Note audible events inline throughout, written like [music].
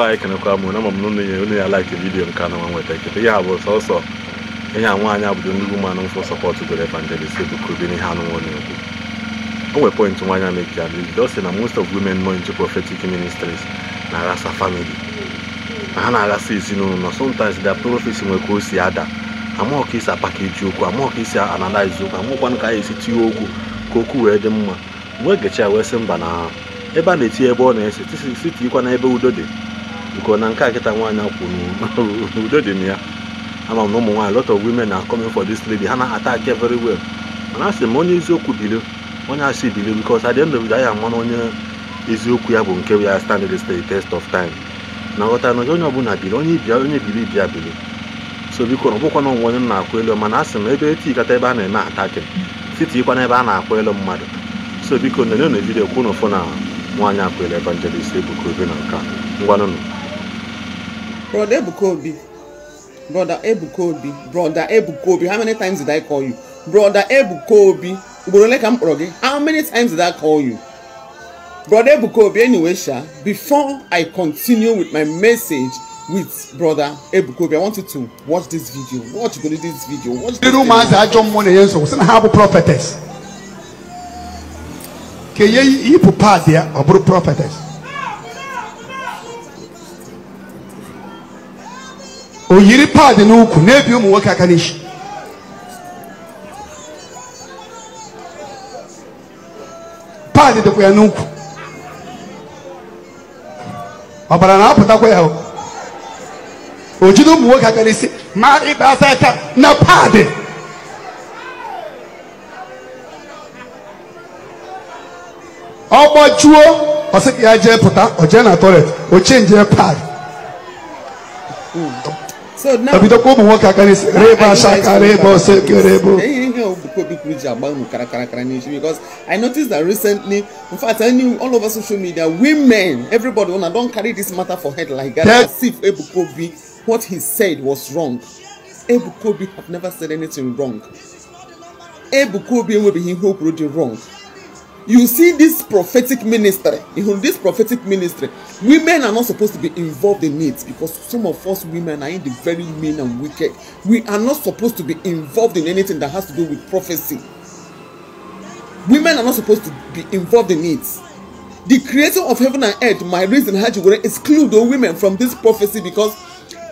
be anyị kenekwa m na ma m na onye ya like vidiyo nke anọ nwa nweta ekete ihe a bụ sọsọ ihe a nwaanyị abụdo ndị ụmụanụ mfụ sọpọtụ gore evangelist bụ kubiri ihe anụ nwa na-ekwu o nwere point nwaanyị a mekia bido sị na most of women nọ into prophetic ministries na-aghasa family na ha na-aghasa ezinụlọ sometimes their prophecy nwere ka o si ada amaghị ka isi apakeji okwu amaghị ka isi analize okwu amaghịkwanụ ka anyị esi tinye okwu ka okwu wee dị mma wee gecha ya wee sị mba na ebe a na-etinye ebe ọ na-ese siti ikwa na ebe udo dị nke na nke a kịta nwaanyị kwuru [laughs] udo dị na ya ama m na ụmụ nwaanyị lot of women na coming for this lady ha na-ata aka very well mana asị m onye eziokwu bilio onye asị bilio because at the end of the onye eziokwu ya bụ nke ya stand the test of time na nghọta na onye ọbụla bili onye ibia onye bili bịa bili so biko na ọbụkwa na onwe onye na-akwụ elu mana asị m ebe etikata ebe a na-eme ataki titikwa na ebe a na-akwụ elu mmadụ so biko na onye na vidio kwụ na ụfụ na nwaanyị akwụelu evangelist ebuka obe na nka ngwanụnụ Brother Ebukobi, Brother Ebukobi, Brother Ebukobi. How many times did I call you? Brother Ebukobi? Obi. Ugboro ole ka m kpọrọ gị? How many times did I call you? Brother Ebukobi? Obi anyway sha, before I continue with my message with Brother Ebukobi, I want you to watch this video. Watch go this video. Watch this video. Rumors are John Money Yenso. Sina ha bụ prophetess. Ka ihe yi ipu paadị ya, ọ bụrụ prophetess. o yiri paadi n'ukwu n'ebi ụmụ nwoke aka n'isi paadi dịkwa ya n'ukwu ọbara na-apụtakwa ya o jide ụmụ nwoke aka n'isi ma ịba asa aka na paadi ọgbajuo ọsị ka ya jee pụta o jee na tọilet o chenjie paadi so now because i noticed that recently in fact I knew all over social media women everybody una don carry this matter for head like that as if Ebukobi, what he said was wrong Ebukobi have never said anything wrong Ebukobi bi be him o kwuru dị wrong you see this prophetic ministry in this prophetic ministry women are not supposed to be involved in it because some of us women are in the very mean and wicked we are not supposed to be involved in anything that has to do with prophecy women are not supposed to be involved in it the creator of heaven and earth my reason haji were exclude the women from this prophecy because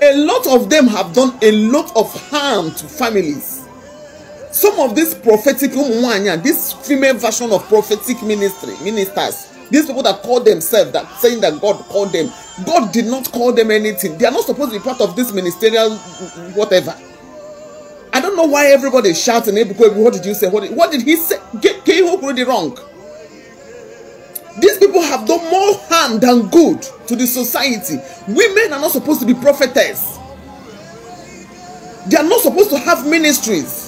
a lot of them have done a lot of harm to families some of these prophetic women, um, um, um, this female version of prophetic ministry ministers these people that call themselves that saying that god called them god did not call them anything they are not supposed to be part of this ministerial mm, whatever i don't know why everybody is shouting what did you say what did, what did he say get Kehoku really wrong these people have done more harm than good to the society women are not supposed to be prophetess they are not supposed to have ministries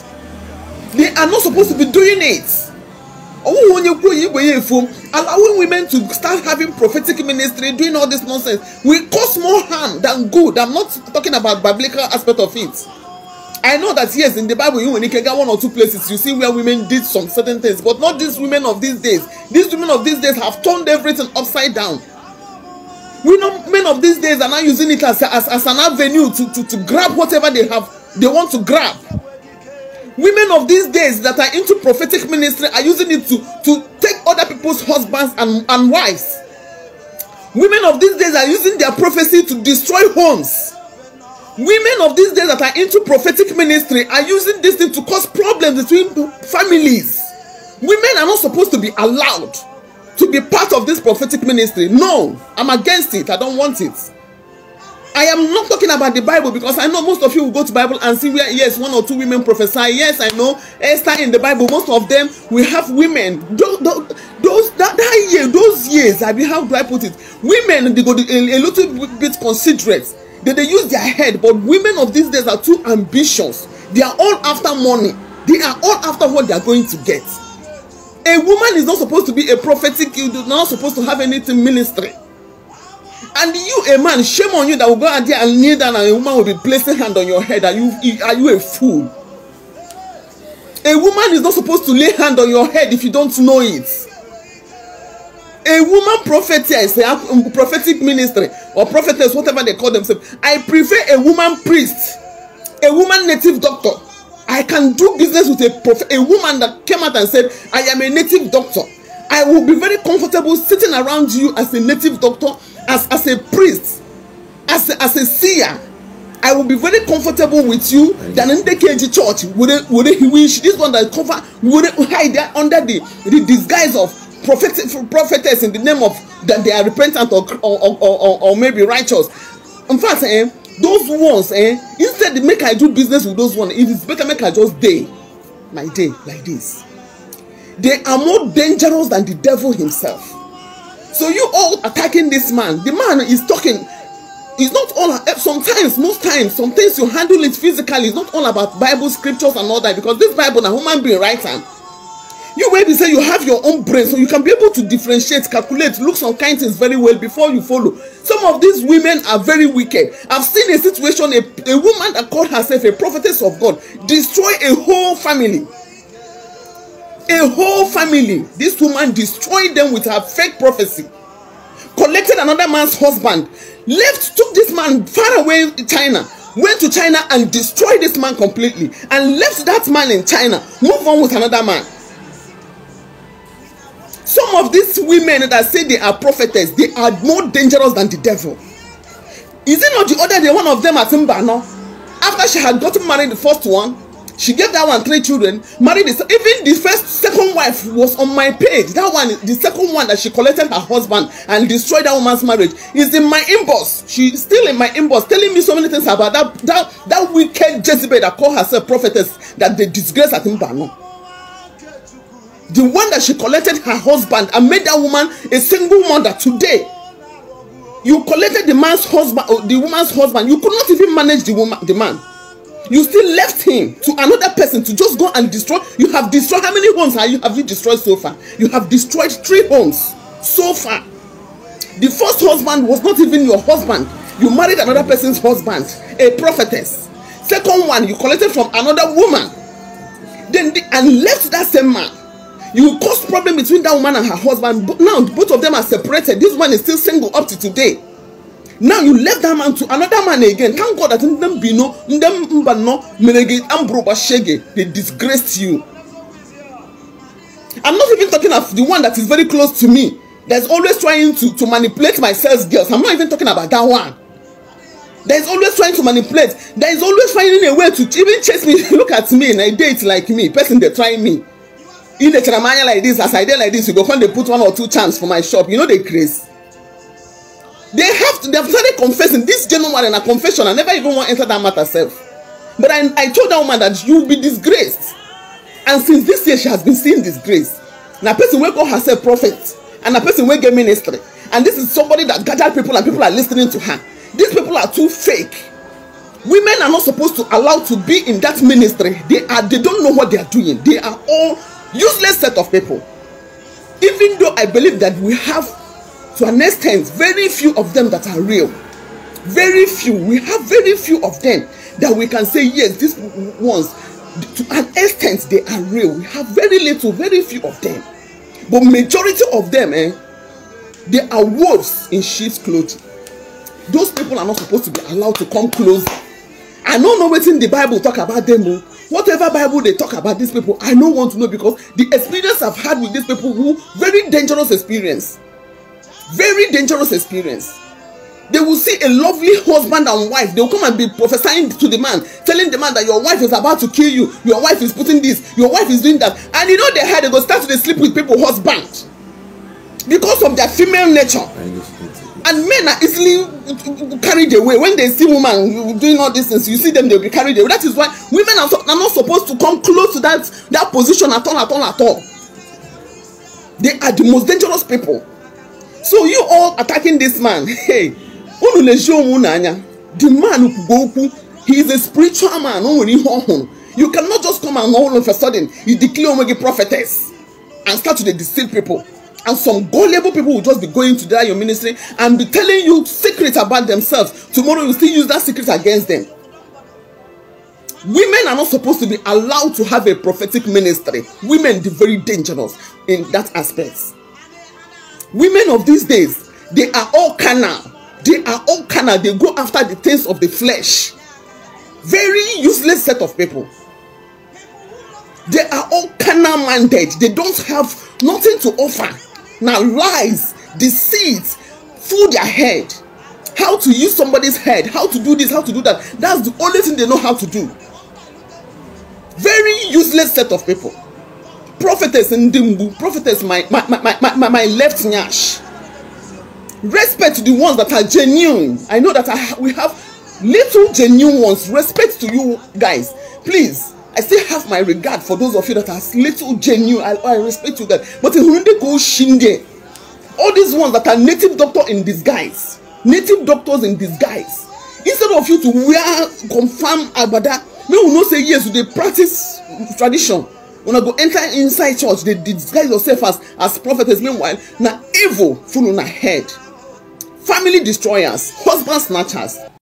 They are not supposed to be doing it. Oh, when you grow, you go allowing women to start having prophetic ministry, doing all this nonsense will cause more harm than good. I'm not talking about biblical aspect of it. I know that yes, in the Bible, you when can get one or two places, you see where women did some certain things, but not these women of these days. These women of these days have turned everything upside down. We know men of these days are now using it as, as, as an avenue to, to, to grab whatever they have they want to grab women of these days that are into prophetic ministry are using it to to take other people's husbands and and wives women of these days are using their prophecy to destroy homes women of these days that are into prophetic ministry are using this thing to cause problems between families women are not supposed to be allowed to be part of this prophetic ministry no i'm against it i don't want it I am not talking about the Bible because I know most of you will go to Bible and see where yes one or two women prophesy yes I know Esther in the Bible most of them we have women those, those that, that year those years I mean how do I put it women they go a, a little bit considerate they dey use their head but women of these days are too ambitious they are all after money they are all after what they are going to get a woman is not supposed to be a prophetic you do not supposed to have anything ministry And you, a man, shame on you that will go out there and kneel down and a woman will be placing hand on your head. Are you are you a fool? A woman is not supposed to lay hand on your head if you don't know it. A woman prophetess, a prophetic ministry or prophetess, whatever they call themselves. I prefer a woman priest, a woman native doctor. I can do business with a prof- a woman that came out and said, I am a native doctor. I will be very comfortable sitting around you as a native doctor as as a priest as a, as a seer I will be very comfortable with you than in the KG church would it would wish this one that cover would it hide there under the the disguise of prophet prophetess in the name of that they are repentant or or or, or, or maybe righteous in fact eh those ones eh instead make I do business with those ones it is better make I just dey my day like this they are more dangerous than the devil himself So you all attacking this man. The man is talking. It's not all. Eh, sometimes, most times, some things you handle it physically. It's not all about Bible scriptures and all that because this Bible, a human being writes and you wey be say you have your own brain so you can be able to differentiate calculate look some kind things very well before you follow some of these women are very wicked i've seen a situation a, a woman that called herself a prophetess of god destroy a whole family a whole family this woman destroyed them with her fake prophecy collected another man's husband left took this man far away China went to China and destroyed this man completely and left that man in China move on with another man some of these women that say they are prophetess they are more dangerous than the devil is it not the other day one of them at Mbano after she had gotten married the first one she gave that one three children married the even the first second wife was on my page that one the second one that she collected her husband and destroyed that woman's marriage is in my inbox she still in my inbox telling me so many things about that that that wicked jezebel that call herself prophetess that dey disgrace atimbanu the one that she collected her husband and made that woman a single mother today you collected the man's husband oh, the woman's husband you could not even manage the woman the man you still left him to another person to just go and destroy you have destroyed how many homes have you have you destroyed so far you have destroyed three homes so far the first husband was not even your husband you married another person's husband a prophetess second one you collected from another woman then the, and left that same man you caused problem between that woman and her husband but now both of them are separated this one is still single up to today now you left that man to another man again thank god that ndem bino ndem mbano merege ambro shege they disgraced you i'm not even talking of the one that is very close to me that's always trying to to manipulate my sales girls i'm not even talking about that one there is always trying to manipulate there is always finding a way to even chase me [laughs] look at me na date like me person dey try me if dey charamanya like this as i dey like this you go come dey put one or two chance for my shop you know the craze dey they have started confessing this gentleman in a confession i never even want to enter that matter self but i i told that woman that you will be disgraced and since this year she has been seeing disgrace na person wey call herself prophet and na person wey get ministry and this is somebody that gather people and people are lis ten ing to her these people are too fake women are not supposed to allow to be in that ministry they are they don't know what they are doing they are all useless set of people even though i believe that we have to an extent very few of them that are real very few we have very few of them that we can say yes these ones to an extent they are real we have very little very few of them but majority of them eh they are wolves in sheep's clothing those people are not supposed to be allowed to come close i no know wetin the bible talk about them o oh. whatever bible dey talk about these people i no want to know because the experience i've had with these people who very dangerous experience very dangerous experience they will see a lovely husband and wife they will come and be prophesying to the man telling the man that your wife is about to kill you your wife is putting this your wife is doing that and you know they had they go start to dey sleep with people husband because of their female nature and men are easily carried away when they see woman doing all these things you see them they be carried away that is why women are, so, are not supposed to come close to that that position at all at all at all they are the most dangerous people so you all attacking this man [laughs] hey unu na-eji onwe unu anya the man kwugo okwu he is a spiritual man o nwere ihe ọhụrụ you cannot just come and all of a sudden you declare onwe gị prophetess and start to dey deceive people and some gullible people will just be going to that your ministry and be telling you secrets about themselves tomorrow you still use that secret against them women are not supposed to be allowed to have a prophetic ministry women dey very dangerous in that aspect women of these days they are all carnal they are all carnal they go after the things of the flesh very useless set of people they are all carnal minded they don't have nothing to offer now lies deceit full their head how to use somebody's head how to do this how to do that that's the only thing they know how to do very useless set of people prophetess ndị mgbu prophetess my my my my my left nyash respect to the ones that are genuine i know that I, we have little genuine ones respect to you guys please i still have my regard for those of you that are little genuine i, I respect you guys but ehunde ko shinde all these ones that are native doctor in disguise native doctors in disguise instead of you to wear confam agbada make we know say yes we dey practice tradition una go enter inside church dey disguise yourself as as prophetess meanwhile na evil full una head family destroyers husband snatchers